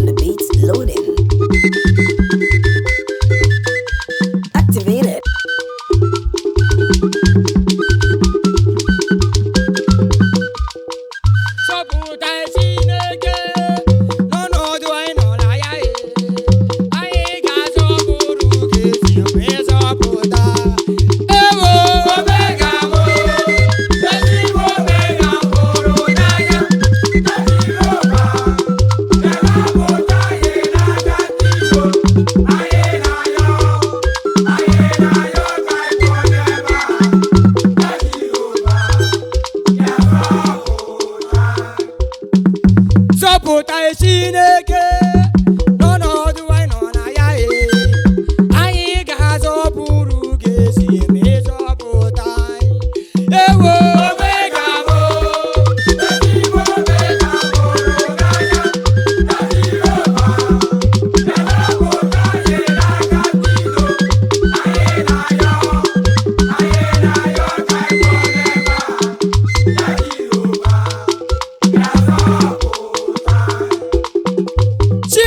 on the beats loading.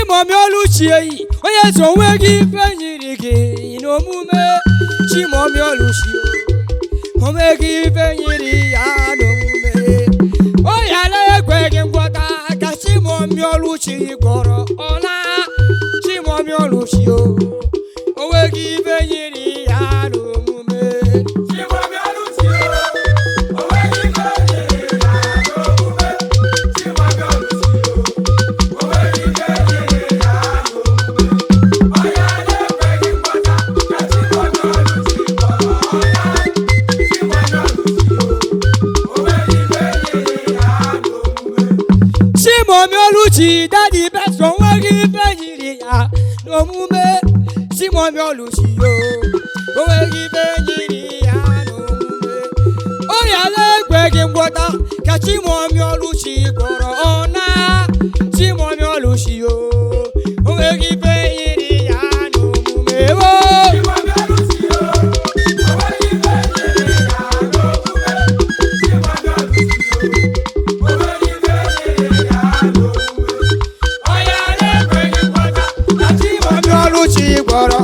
Chimọmioluchie onye so onwe gị ife nyiri gị n'omume Chimọmioluchie onwe gị ife nyiri ya n'omume o yala ekwe gị ngwọta ka Chimọmioluchie gwọrọ ọla Chimọmioluchie onwe gị ife nyiri si dadi beso nwere ya n'omume Simon Oluchi yo o nwere ife nyiri ya n'omume ọrịa ala ekweghị ngwọta ka Simon Oluchi gọrọ kpọrọ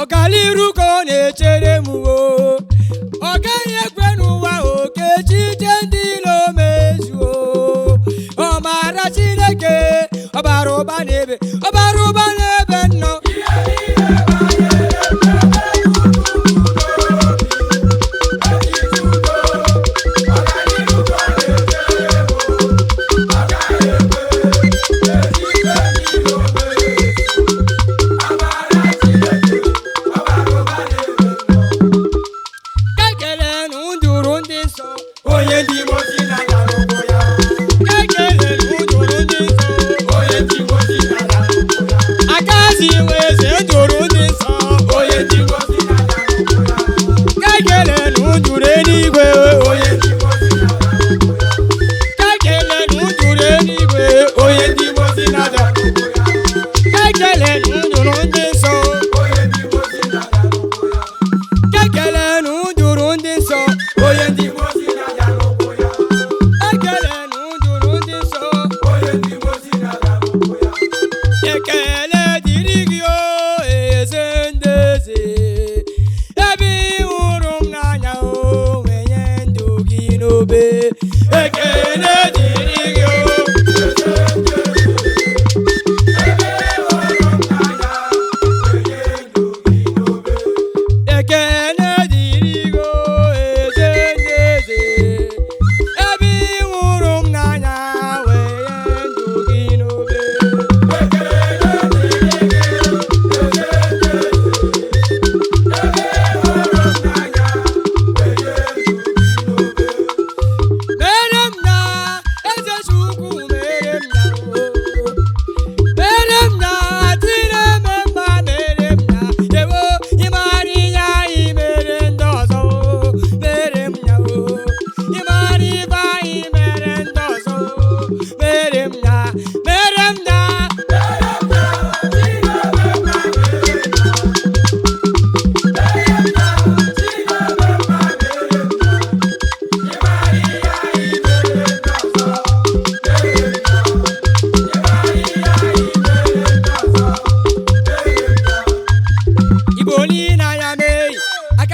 ọkaliru ka ọ na-echere m o ọ gaghị ekwe n'ụwa okechi ije ndị ilo mezuo ọ maara Chineke ọbara ụba n'ebe ọbara ụba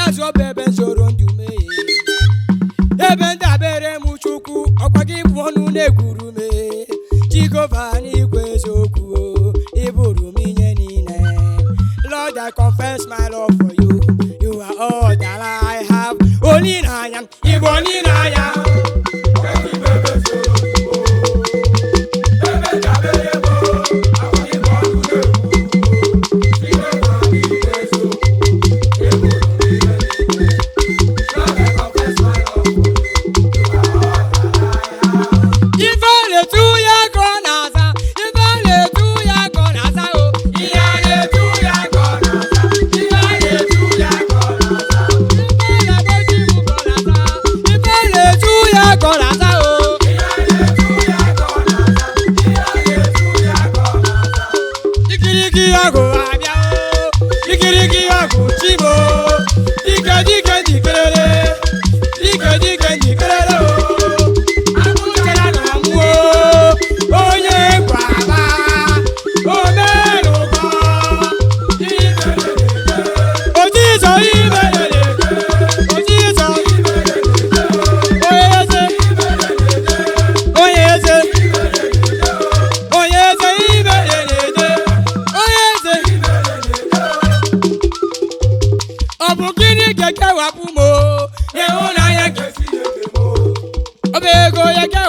aka ọbụ ebe nsogbu ndụ mee ebe ndabere m chukwu ọkwa gị bụ ọnụ na-ekwuru mee jigova n'igwe eziokwu ịbụrụ m ihe niile Lord I confess my love for you you are all that I have onye na anya ịbụ onye na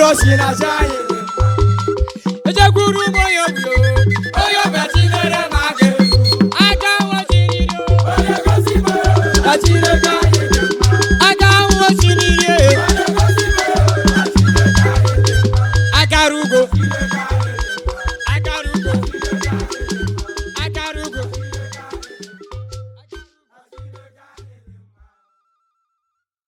mkpụrụ osi na aja anyị ejekwuru ugbo ya onye ọbịachi ma aga aja jiriri onye gosi mara